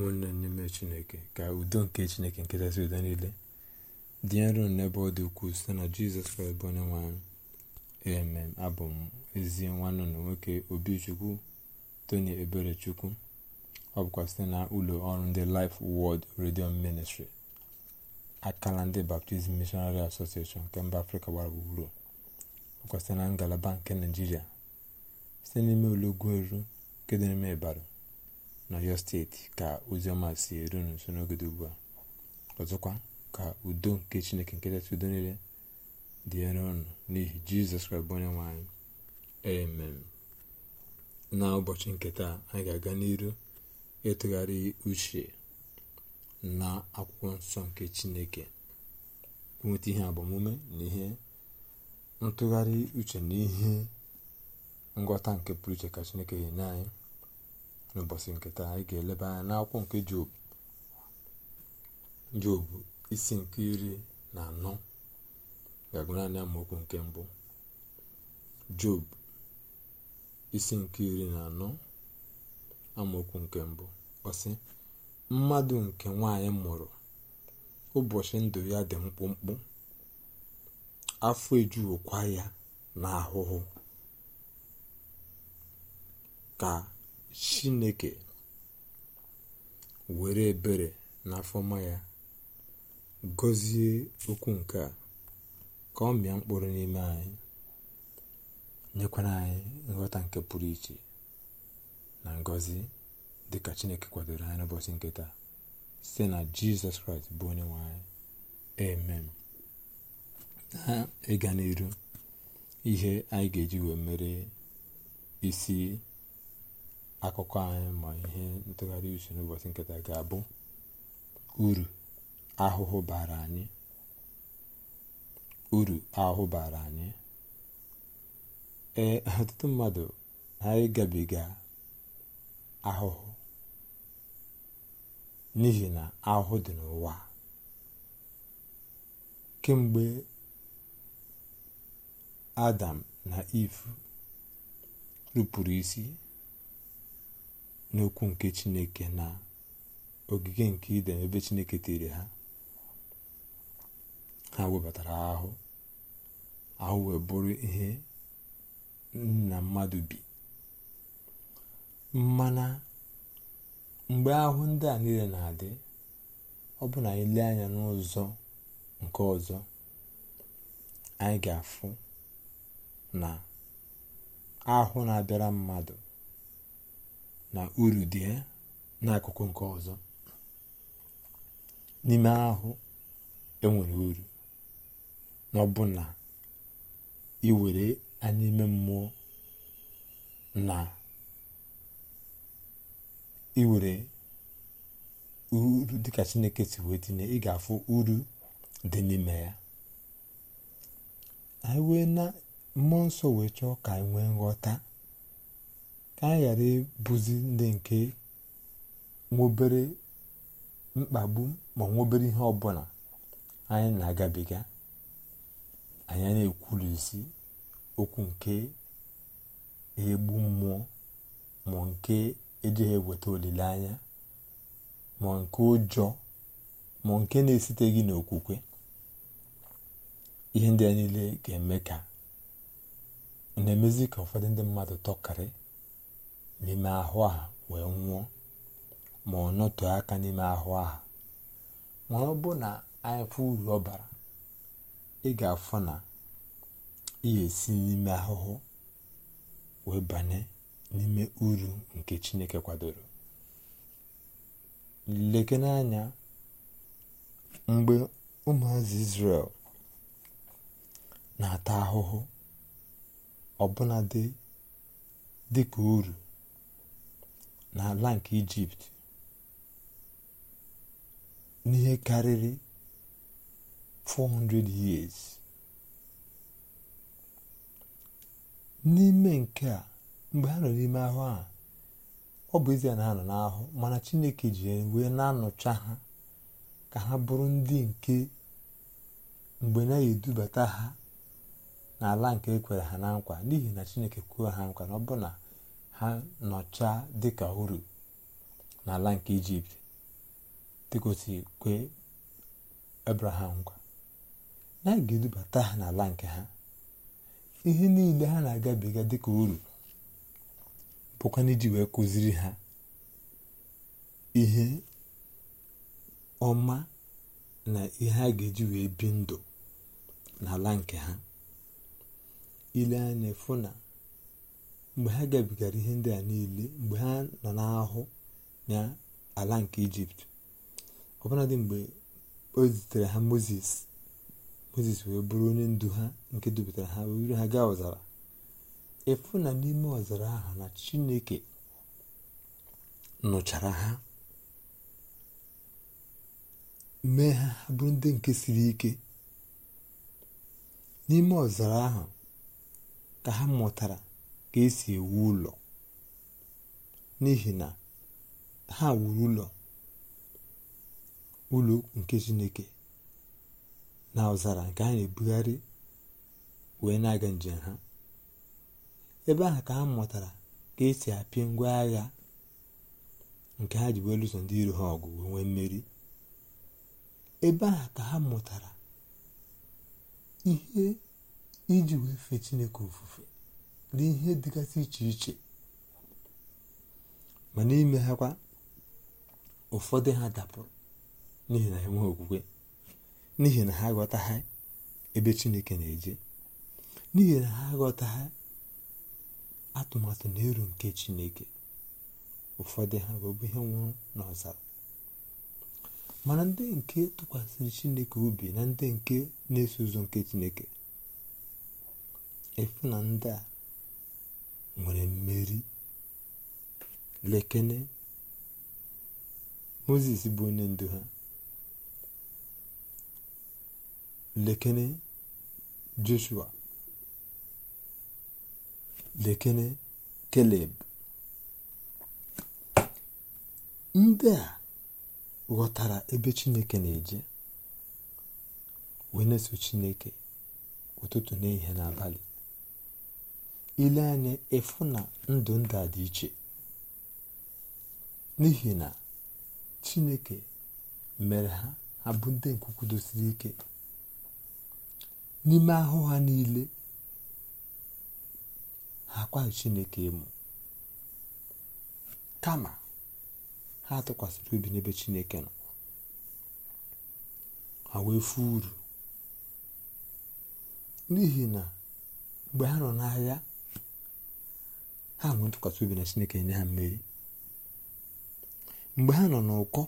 ụmụnne n'ime chineke ka udo nke chineke nkịtasị udo niile dị nro n'ebe ọ dị ukwuu site na jizọs kraịst bụ onye nwe abụ m ezi nwanne na nwoke obichukwu tony eberechukwu ọ bụkwa site na ụlọ ọrụ ndị Life wọld redio Ministry akala ndị baptizim mishonari Association nke mba Afrịka gbara gburugburu ọ bụkwa site na ngalaba nke Naịjirịa site n'ime ụlọgwu eru nke dị n'ime Ibadan n'ọyọ steeti ka oziọma si eru nso n'ogede ugbu a ọzọkwa ka udo nke chineke nke udo niile dị ere ọnụ n'ihi jizọs kraịst bụ onye nwe anyị amen na ụbọchị nketa anyị ga-aga n'iru ịtụgharị uche na akwụkwọ nsọ nke chineke nweta ihe agbamume na ihe ntụgharị uche na ihe ngwọta nke pụrụ iche ka chineke nye anyị n'ụbọchị nke taa anyị ga-eleba anya n'akwụkwọ nke job job isi nke iri na anọ ga-agụ anya amaokwu nke mbụ job isi nke iri na anọ amaokwu nke mbụ ọsị mmadụ nke nwanyị mụrụ ụbọchị ndụ ya dị mkpụmkpụ afọ ejuokwa ya na ahụhụ ka chineke were ebere n'afọma ya gọzie okwu nke a ka ọ mịa mkpụrụ n'ime anyị nyekwara anyị nghọta nke pụrụ iche na ngọzi dịka chineke kwadoro anyị n'ụbọchị nke taa site na jizọs kraịst bụ onye nwanyị anyị amen na ịga n'iru ihe anyị ga-eji wee mere isi akụkọ anyị ma ihe ntụgharị uche n'ụbọchị nketa ga-abụ uru ahụhụ bara anyị uru ahụhụ bara anyị ee ọtụtụ mmadụ ha ịgabiga ahụhụ n'ihi na ahụhụ dị n'ụwa kemgbe adam na ifu rụpụrụ isi n'okwu nke chineke na ogige nke iden ebe chineke tere ha ha webatara ahụ ahụ wee bụrụ ihe nna mmadụ bi mana mgbe ahụ ndị a niile na-adị ọ bụ na anyị lee anya n'ụzọ nke ọzọ anyị ga-afụ na ahụ na-abịara mmadụ na uru dị eh, n'akụkụ nke ọzọ n'ime ahụ enwere uru na ọbụna iwere anya ime mmụọ na iwere uru dị ka chineke si wee tinye ị ga-afụ uru dị n'ime ya anyị wee na mmụọ nsọ wee chọọ ka anyị nwee nghọta ka anyị ghara ịbụzi ndị nke nwobere mkpagbu ma nwobere ihe ọbụla anyị na-agabiga anyị na isi okwu nke egbu mmụọ ma nke ejighị eweta olileanya ma nke ụjọ ma nke na esite gị n'okwukwe ihe ndị a niile ga-eme ka na-emezi ka ụfọdụ ndị mmadụ tọkarị n'ime ahụ a wee nwụọ ma ọ nọtụ aka n'ime ahụ aha ma ọ bụ na anyị uru ọ bara ị ga-afụ na ihe si n'ime ahụhụ wee banye n'ime uru nke chineke kwadoro leke n'anya mgbe ụmụazị Izrel na-ata ahụhụ ọbụnadị ka uru n'ala nke ijipt n'ihe karịrị 400 years n'ime nke a mgbe ha nọ n'ime ahụ a ọ bụ ezie na ha nọ n'ahụ mana chineke ji wee na-anọcha ha ka ha bụrụ ndị nke mgbe na-edubata ha n'ala nke ekwere ha na nkwa n'ihi na chineke kwuo ha nkwa na ọ bụ na ha nọcha dịka uru n'ala nke ijipt dịkosi kwe abraham gwa na edubata ha n'ala nke ha ihe niile ha na-agabiga dịka uru bụkwana iji wee kụziri ha ihe ọma na ihe a ga-eji wee bi ndụ n'ala nke ha ile anya mgbe ha gabigara ihe ndị a niile mgbe ha nọ n'ahụ ya ala nke ijipt ọbụladị mgbe o zitere ha moses moses wee bụrụ onye ndu ha nke dupụtara ha wee wuru ha gaa ọzara efu na n'ime ọzara ahụ na chineke nụchara ha mee ha ha bụrụ ndị nke siri ike n'ime ọzara ahụ ka ha mụtara ka esi ewu ụlọ n'ihi na ha wuru ụlọ ụlọ nke chineke na ọzara nke a na-ebugharị wee na-aga njem ha ebe ahụ ka ha mụtara ka esi apịa ngwa agha nke ha ji wee lụso ndị iro ha ọgụ wee nwee mmeri ebe ahụ ka ha mụtara ihe iji wee fee chineke ofufe n'ihe dịgasị iche iche ma n'ime ha ụfọdụ ha dapụrụ n'ihi na enwe okwukwe n'ihi na ha ghọtaghị ebe chineke na-eje n'ihi na ha ghọtaghị atụmatụ na eru nke chineke ụfọdụ ha bụ ihe nwụrụ n'ọzara mana ndị nke tụkwasịrị chineke obi na ndị nke na-eso ụzọ nke chineke efu na ndị a nwere mmeri lekene moses bụ onye ndu ha lekene joshua lekene keleb ndị a ghọtara ebe chineke na-eje wee na-eso chineke ụtụtụ n'ihe n'abalị ile anya ịfụ na ndụ ndụ dị iche n'ihi na chineke mere ha ha bụ ndị nkwukwudosiri ike n'ime ahụ ha niile ha akwaghị chineke ịmụ kama ha tụkwasịrị obi n'ebe chineke nọ ha wee fụ uru n'ihi na mgbe ha nọ n'ahịa ha nwee ntụkwasị obi na chineke nye ha mmeri mgbe ha nọ n'ụkọ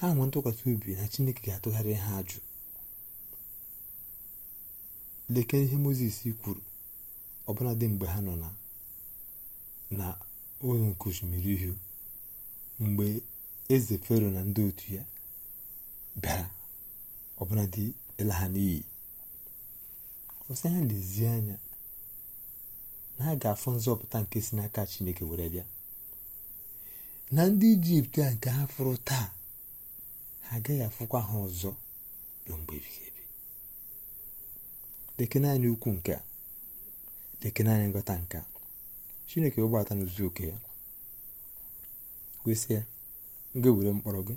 ha nwee ntụkwasị obi na chineke ga-atụgharị ha ajụ leke ihe moses kwuru dị mgbe ha nọ na ụlọ nke osimiri ihu mgbe eze fero na ndị otu ya bịara ọbụladị ịla ha n'iyi ọsị ha lezie anya na ha ga-afụ nzọpụta nke si n'aka chineke were bịa na ndị ijipt a nke ha fụrụ taa ha agaghị afụkwa ha ọzọ ruo mgbe ebighị ebi lekene anyị ukwu nke a lekene naanị nghọta nke a chineke ụgbọata na ozu oke ya kwesị ya nga were mkpọrọ gị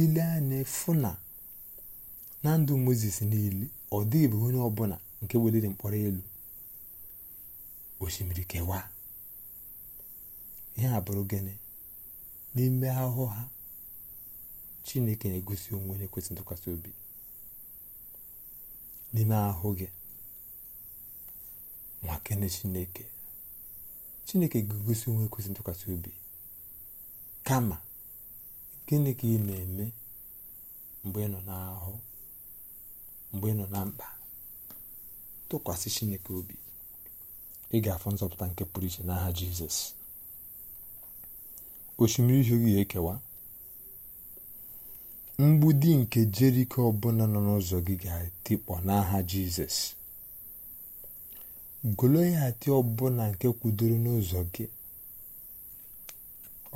ile anya fụ na na ndụ mozes niile ọ dịghị bụ onye ọbụla nke weliri mkpọrọ elu osimiri kewaa ihe a bụrụ gịnị n'ime ahụhụ ha chineke na-egosi onwe onye kwesịrị ntụkwasị obi n'ime ahụ gị nwa chineke chineke ga-egosi onwe kwesị ntụkwasị obi kama gịnị ka ị na-eme mgbe ị nọ n'ahụ mgbe ị nọ na mkpa tụkwasị chineke obi ị ga afọ nzọpụta nke pụrụ iche n'aha jizọs osimiri ihe gị ga-ekewa di nke jeriko ọbụna nọ n'ụzọ gị ga-atikpọ n'aha jizọs ati ọbụna nke kwudoro n'ụzọ gị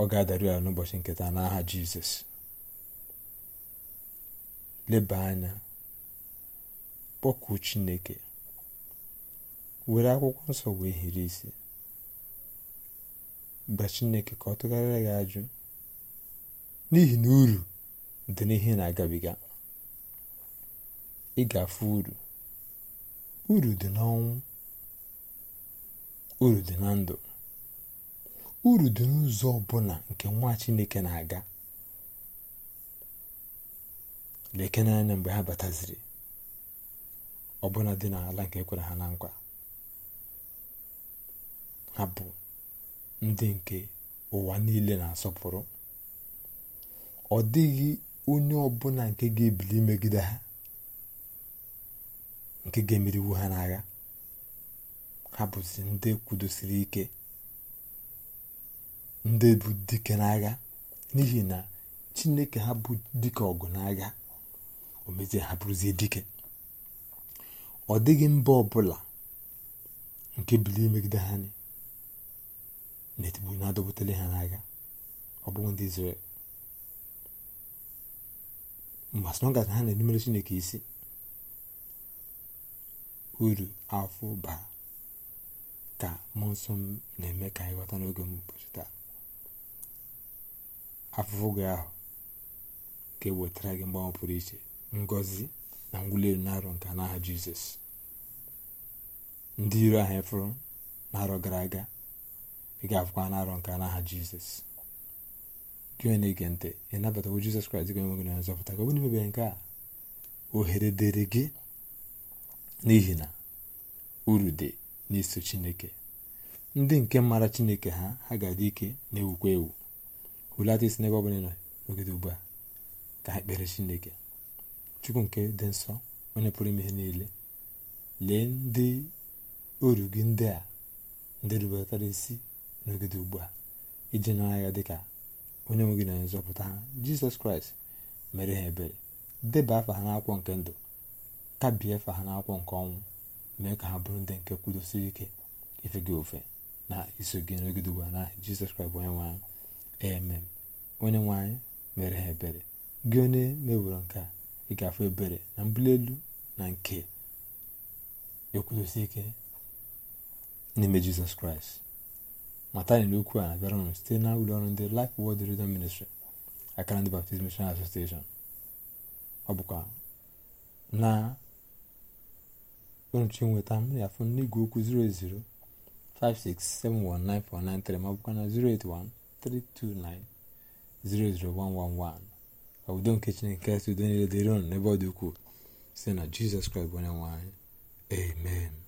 ọ ga-adaru ya n'ụbọchị nketa n'aha jizọs leba anya kpọkuo chineke were akwụkwọ nsọ wee hiri isi gba chineke ka ọ tụgharịa gị ajụ n'ihi na uru dị n'ihe na-agabiga ị ga-afụ uru uru dị n'ọnwụ uru dị na ndụ uru dị n'ụzọ ọbụla nke nwa chineke na-aga na anya mgbe ha bataziri ọbụla dị n'ala nke kwere ha na nkwa ha bụ ndị nke ụwa niile na-asọpụrụ ọ dịghị onye ọbụla nke ga-ebili imegide ha nke ga-emeriwu ha n'agha ha bụzi ndị kwudosiri ike ndị bụ dike n'agha n'ihi na chineke ha bụ dike ọgụ n'agha o mezie ha bụrụzie dike ọ dịghị mba ọbụla nke bili imegide ha anyị na-etigbu na-adọbutele ha n'agha ọ bụghị ndị Izrel mba asọnọgata ha na-erubere Chineke isi uru afọ bara ka mmụọ nsọ m na-eme ka anyị ghọta n'oge m ụbọchị taa afụfụ gị ahụ ga-ewetara gị mgbanwe pụrụ iche ngọzi na ngwụli elu na-arọ nke n'aha Jizọs ndị iro ahụ efụrụ na arọ gara aga ị ga na n'arọ nke n'aha jizọs gị onye na-ege ntị ị nabatawo jizọs kraịst gị onwe gị na nzọpụta ka bụrụ imebe nke a ohere dịrị gị n'ihi na uru dị n'iso chineke ndị nke mara chineke ha ha ga-adị ike na-ewukwa ewu hulata isi n'ebe ọ bụla nọ n'ogide ugbu a ka ha kpere chineke chukwu nke dị nsọ onye pụrụ ime ihe niile lee ndị uru gị ndị a ndị rubetara isi n'ogide ugbu a iji nyere anya dịka onye nwe gị na nzọpụta ha jizọs kraịst mere ha ebere deba afa ha n'akwụkwọ nke ndụ kabie afa ha n'akwụkwọ nke ọnwụ mee ka ha bụrụ ndị nke kwudosiri ike ife gị ofe na iso gị n'ogide ugbu a na jizọs kraịst bụ onye nwe anyị emem onye nwe anyị mere ha ebere gị onye meworo nke a ị ga-afụ ebere na mbuli elu na nke ekwudosi ike n'ime jizọs kraịst mata anyị n'okwu a na-abịara unu site na ụlọọrụ ndị Life Word Radio Ministry akara ndị Baptist Mission Association ọ bụkwa na nrụchi nweta m ya n'igwe okwu 00567194993 ma ọ na 08132900111 ka nke Chineke nke udo niile dịrị ọnụ n'ebe ọ dị ukwuu site na Jizọs Kraịst bụ onye nwanyị. amen